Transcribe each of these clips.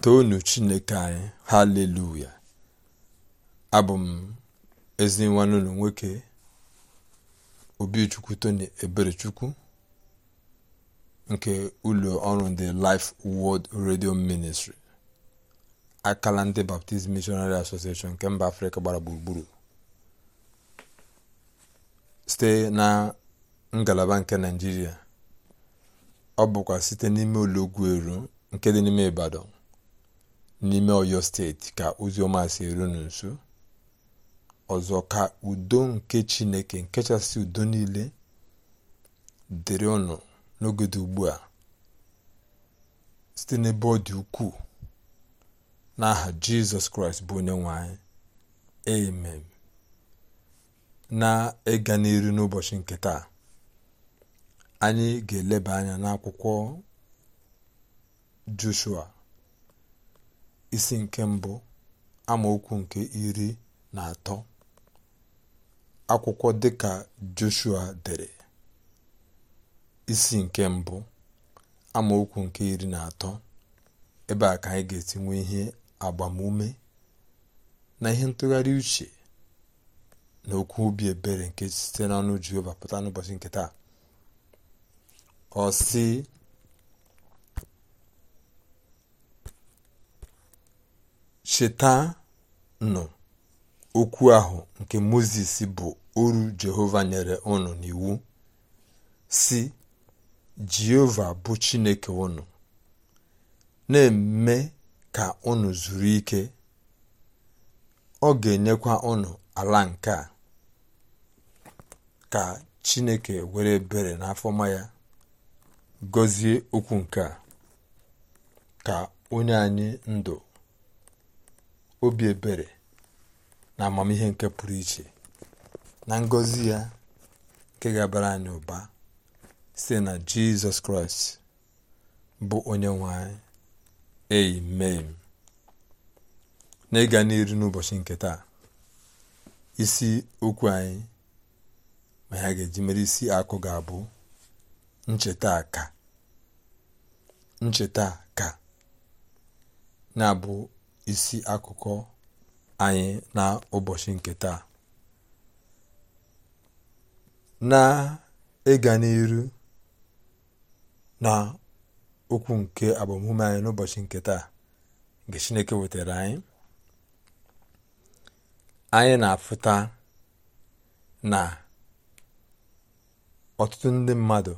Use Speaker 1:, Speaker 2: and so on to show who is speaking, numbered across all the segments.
Speaker 1: toonu chineke anyị haleluya abụ m ezi nwoke obichukwu tony eberechukwu nke ụlọ ọrụ ndị life world radio ministry akala ndị baptist missionary association nke mba afrịka gbara gburugburu site na ngalaba nke naijiria ọ bụkwa site n'ime ụlọ ogwu eru nke dị n'ime ibadan n'ime ọyọ steeti ka oziọma si erunu nso ọzọ ka udo nke chineke nkechasị udo niile dịrị ọnụ n'oge dị ugbu a site n'ebe ọ ukwuu n'aha jizọs kraịst bụ onye nwanyị anyị amen na-ịga n'iru n'ụbọchị nke taa anyị ga-eleba anya n'akwụkwọ joshua isi nke mbụ amaokwu nke iri na atọ akwụkwọ dịka joshua dere isi nke mbụ amaokwu nke iri na atọ ebe a ka anyị ga-etinwe ihe agbamume na ihe ntụgharị uche na okwu obi ebere nke site n'ọnụ jehova pụta n'ụbọchị nke taa ọ si Chetanụ okwu ahụ nke moses bụ oru Jehova nyere unu n'iwu si “Jehova bụ Chineke unu, na-eme ka ụnụ zuru ike, ọ ga-enyekwa ụnụ ala nke a,” ka Chineke were ebere n'afọma ya gọzie okwu nke a ka onye anyị ndụ obi ebere na amamihe nke pụrụ iche na ngọzi ya nke ga-abara anyị ụba site na jizọs kraịst bụ onye nwe anyị amen na ịga n'iru n'ụbọchị nke taa isi okwu anyị ma ha ga-eji mere isi akụ ga-abụ ncheta ka ncheta ka isi akụkọ anyị na ụbọchị nke taa na ịga n'iru na okwu nke agbamume anyị n'ụbọchị nke taa nke chineke wetara anyị anyị na-afụta na ọtụtụ ndị mmadụ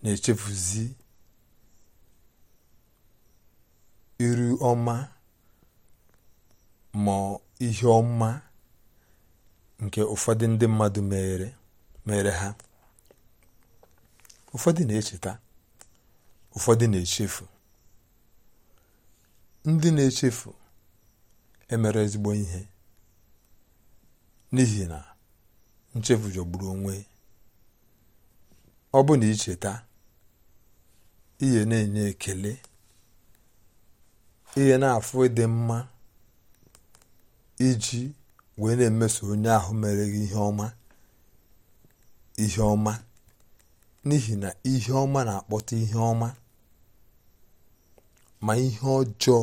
Speaker 1: na-echefuzi iru ọma ma ihe ọma nke ụfọdụ ndị mmadụ mere mere ha ụfọdụ na-echeta ụfọdụ na-echefu ndị na-echefu emere ezigbo ihe n'ihi na nchefu jọgburu onwe ọ bụ na icheta ihe na-enye ekele ihe na-afụ ịdị mma iji wee na-emeso onye ahụ mere ihe ọma ihe ọma n'ihi na ihe ọma na-akpọta ihe ọma ma ihe ọjọọ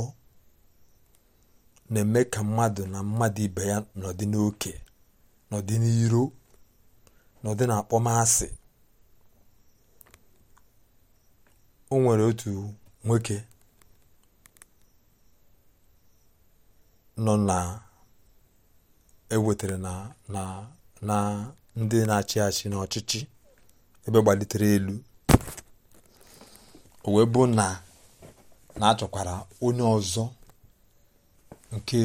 Speaker 1: na-eme ka mmadụ na mmadụ ibe ya nọdị n'oke nọdị n'iro nọdị n'akpọmasị o nwere otu nwoke nọ na-ewetara na ndị na-achị achị n'ọchịchị ọchịchị ebe gbalitere elu o wee bụ na na-achọkwara onye ọzọ nke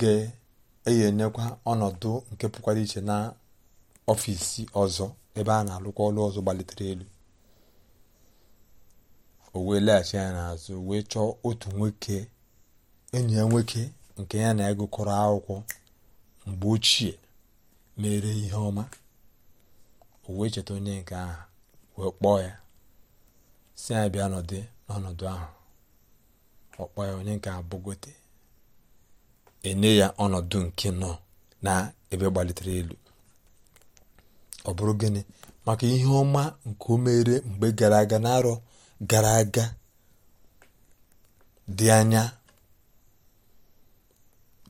Speaker 1: ga-eyenyekwa ọnọdụ nke pụkwara iche na ọfịsi ọzọ ebe a na-alụkwa ọlụ ọzọ gbalitere elu o wee laghachi ya n'azụ wee chọọ otu nwoke enyi ya nwoke nke ya na ịgụkọrọ akwụkwọ mgbe ochie mere ihe ọma o wee cheta onye nke ahụ wee kpọọ ya si ya bịa nọdụ n'ọnọdụ ahụ ọ kpọọ ya onye nke abụgote enye ya ọnọdụ nke nọ na ebe gbalitere elu ọ bụrụ gịnị maka ihe ọma nke o mere mgbe gara aga n'arọ gara aga dị anya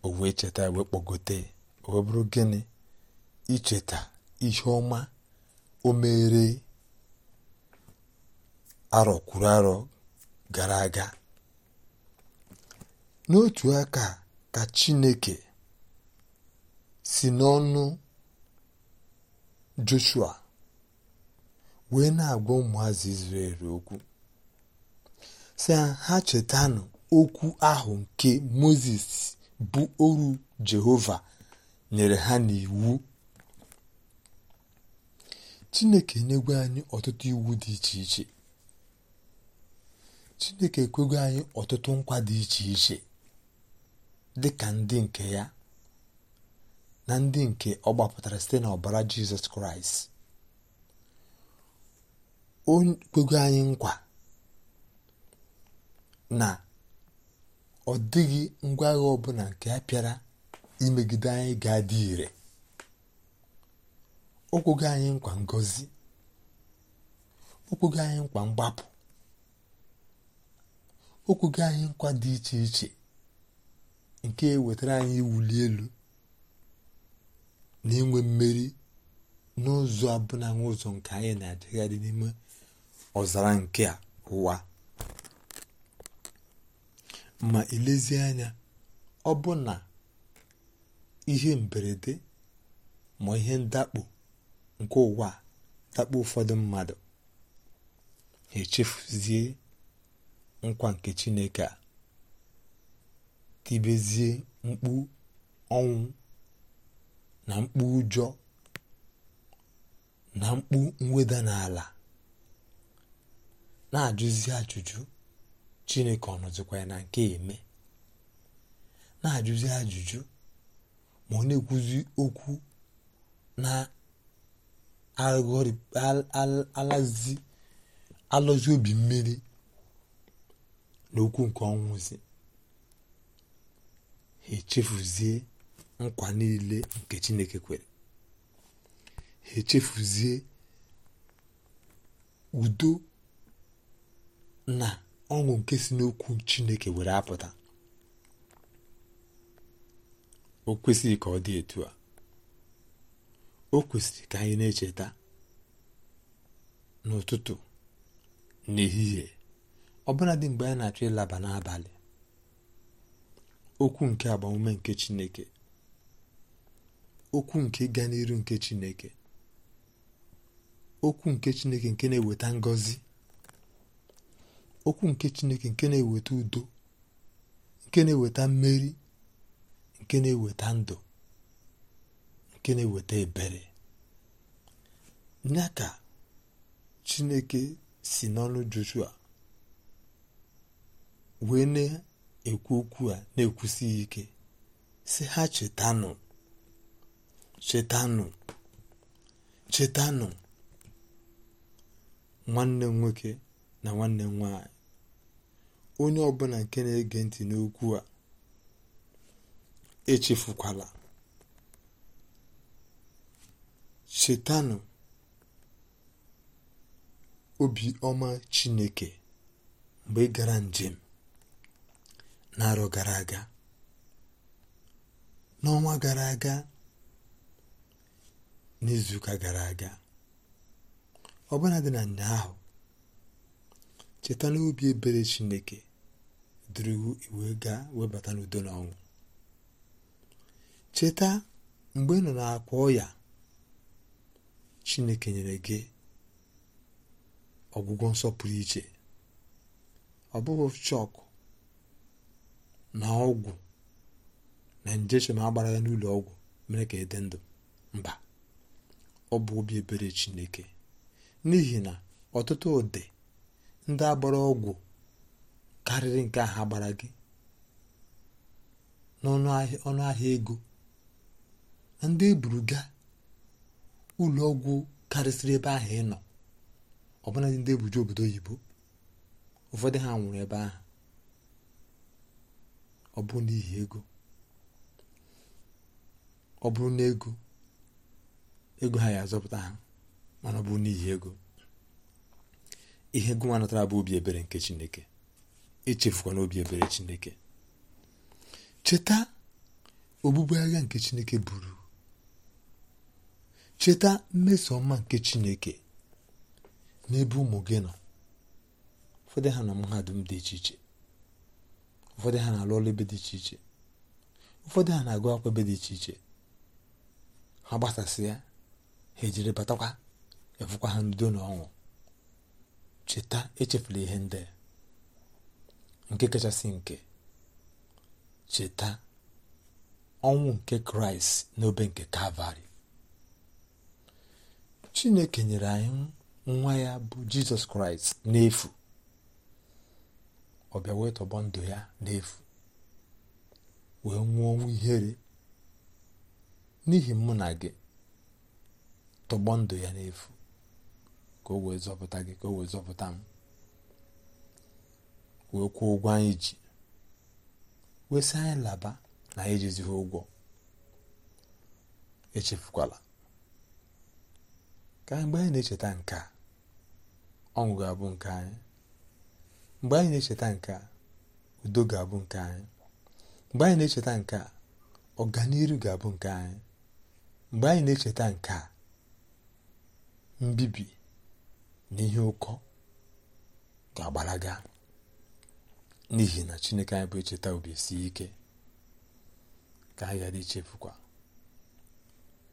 Speaker 1: o wee cheta wee kpọgote o wee bụrụ gịnị icheta ihe ọma o mere arọ kwuru arọ gara aga n'otu aka ka Chineke si n'ọnụ Joshua wee na-agwa ụmụazị Izrel okwu si ha chetanụ okwu ahụ nke Mozis bụ oru Jehova nyere ha n'iwu Chineke enyegwe anyị ọtụtụ iwu dị iche iche Chineke ekwego anyị ọtụtụ nkwa dị iche iche dị ka ndị nke ya na ndị nke ọ gbapụtara site n'ọbara Jizọs Kraịst o kwego anyị nkwa na ọ dịghị ngwa agha ọbụla nke a pịara imegide anyị ga-adị ire okwugo anyị nkwa ngozi okwugo anyị nkwa mgbapụ okwugo anyị nkwa dị iche iche nke e wetara anyị iwuli elu na inwe mmeri n'ụzọ abụna ụzọ nke anyị na dị n'ime ọzara nke a ụwa ma ilezie anya ọ bụ na ihe mberede ma ihe ndakpo nke ụwa dakpo ụfọdụ mmadụ echefuzie nkwa nke chineke a tibezie mkpu ọnwụ na mkpu ụjọ na mkpu mweda n'ala na-ajụzi ajụjụ chineke ọ nọzikwa ya na nke eme na-ajụzi ajụjụ ma ọ na-ekwuzi okwu na-alọzi obi mmiri na okwu nke ọnwụzi ha echefuzie nkwa niile nke chineke kwere ha echefuzie udo na ọṅụ nke si n'okwu chineke were apụta o kwesịghị ka ọ dị etu a o kwesịrị ka anyị na-echeta n'ụtụtụ n'ehihie ọbụladị mgbe anyị na-achọ ịlaba n'abalị okwu nke agbamume nke chineke okwu nke ịga n'iru nke chineke okwu nke chineke nke na-eweta ngọzi okwu nke chineke nke na-eweta udo nke na-eweta mmeri nke na-eweta ndụ nke na-eweta ebere ya ka chineke si n'ọnụ joshua wee na-ekwu okwu a na-ekwusighị ike si ha chetanụ chetanụ chetanụ nwanne m nwoke na nwanne m nwanyị onye ọbụla nke na-ege ntị n'okwu a echefukwala chetanụ obiọma chineke mgbe gara njem n'arọ gara aga n'ọnwa gara aga n'izuụka gara aga ọbụla dị na ahụ cheta n'obi ebere chineke durugu iwe gaa webata n'udo na ọnwụ cheta mgbe ị nọ akwa ọya chineke nyere gị ọgwụgwọ nsọpụrụ iche ọ bụghị chọkụ na ọgwụ na nje a agbara ya n'ụlọ ọgwụ mere ka ịdị ndụ mba ọ bụ obi ebere chineke n'ihi na ọtụtụ ụdị ndị agbara ọgwụ karịrị nke ha gbara gị n'ọnụahịa ego ndị eburuga ụlọ ọgwụ karịsịrị ebe ahụ ịnọ nọ ọbụla ndị ebuju obodo oyibo ụfọdụ ha nwụrụ ebe ahụ ọ bụrụ n'ihi ego ọ bụrụ na ego ego ha ya azọpụta ha mana ọ bụrụ n'ihi ego ihe gụnwa natara bụ obi ebere nke chineke echefukwa na obi ebere chineke cheta ogbugbu agha nke chineke buru cheta mmeso ọma nke chineke n'ebe ụmụ gị nọ ụfọdụ ha na mahadum dị iche iche ụfọdụ ha na-alụ ọrụ ebe dị iche iche ụfọdụ ha na-agụ akwụkwọ ebe dị iche iche ha gbasasị ya ha ejiri batakwa efukwa ha ndo na ọṅụ cheta echefula ihe ndị nke kachasị nke cheta ọnwụ nke kraịst n'obe nke kalvarị chineke nyere anyị nwa ya bụ jizọs kraịst n'efu ọbịa bịa wee tọgbọ ndụ ya n'efu wee nwụọ ọnwụ ihere n'ihi mụ na gị tọgbọ ndụ ya n'efu ka o wee zọpụta gị ka o wee zọpụta m wee kwuo ụgwọ anyị ji wee anyị laba na anyị ejizighị ụgwọ echefukwala ka mgbe anyị na-echeta nke a ọṅụ ga-abụ nke anyị mgbe anyị na-echeta nke a udo ga-abụ nke anyị mgbe anyị na-echeta nke a ọganiru ga-abụ nke anyị mgbe anyị na-echeta nke a mbibi n'ihe ụkọ ga-agbalaga n'ihi na chineke anyị bụ echeta obi si ike ka anyị ghara ichefukwa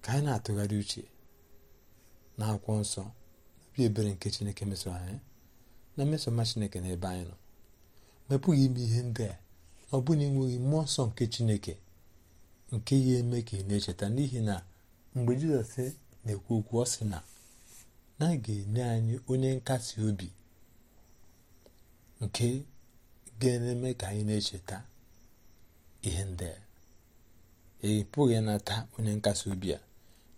Speaker 1: ka anyị na-atụgharị uche na akwụkwọ nsọ obi ebere nke chineke mesoro anyị na mmesoma chineke na ebe anyị nọ ma e pụghị ime ihe ndị a ọ bụ na enweghị mmụọ nsọ nke chineke nke ya eme ka ị na-echeta n'ihi na mgbe jizọs na-ekwu okwu ọ sị na na a ga-enye anyị onye nkasi obi nke ga-eme ka anyị na-echeta ihe ndị ị e pụghị ịnata onye nkasi obi a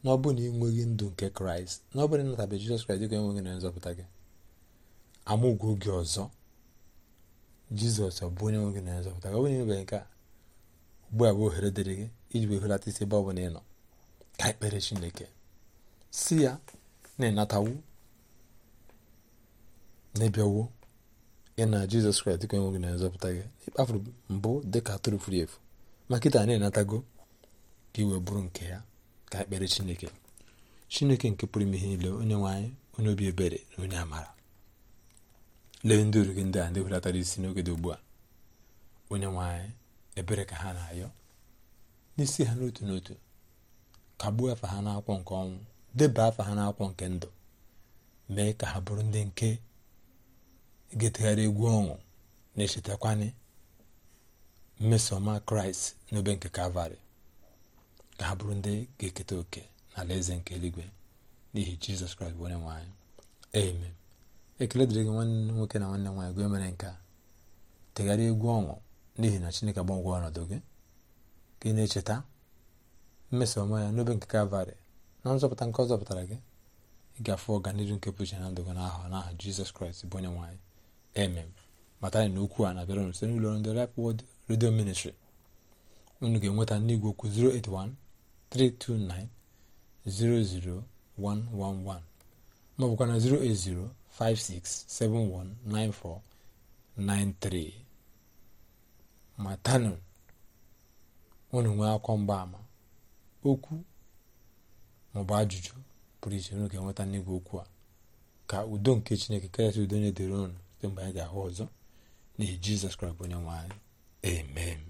Speaker 1: na ọ na ị nweghị ndụ nke kraịst na ọ bụrụ na ịnatabe jizọs kraịst dịka enweghị na nzọpụta gị amụgwọ gị ọzọ jizọs ọ bụ onye nwe gị na nzọpụta gị ọ bụrụ na nke a ugbu a bụ ohere dịrị gị iji wee hulata isi ebe ọ bụla ị nọ ka ekpere chineke si ya na-enatawo na-ebiawo ị na jizọs kraịst dịka enwe gị na nzọpụta gị ịkpafuru mbụ dịka atụrụ furu efu ma kịta na-enatago ka iwe bụrụ nke ya ka ekpere chineke chineke nke pụrụ ime ihe niile onye nwaanyị onye obi ebere na onye amara lee ndị gị ndị a ndị hulatara isi n'oge dị ugbu a onye nwaanyị ebere ka ha na-ayọ n'isi ha n'otu n'otu ka gbuo afa ha n'akwụkwọ nke ọnwụ deba afa ha n'akwụkwọ nke ndụ mee ka ha bụrụ ndị nke getegharị egwu ọṅụ na-echetakwanye mmesoma kraịst n'obe nke kalvarị ka ha bụrụ ndị ga-eketa oke n'ala eze nke eluigwe n'ihi jizọs kraịst bụ onye nwe ekele dịrị gị nwanne nwoke na nwanne nwaanyị gị mere nke a tegharịa egwu ọṅụ n'ihi na chineke agbanwe ọnọdụ gị gị na-echeta mmesoma ya n'obe nke kalvarị na nzọpụta nke ọ zọpụtara gị ị ga-afụ ọganihu nke pụchi na ndụ gị n'aha n'aha jizọs kraịst bụ onye nwaanyị emem mata anyị na okwu a na-abịara site n'ụlọ ndị rap wod redio ministri unu ga-enweta n'igwe okwu 081 329 00111 ma na 080 matanụ unu nwee akwa mgbaama okwu maọbụ ajụjụ pụrụ iche unu ga-enweta n'igwe okwu a ka udo nke chineke karịsị udo onye edere ụnụ site mgbe anyị ga-ahụ ọzọ n'ihi jizọs kraịst onye nwe anyị emem.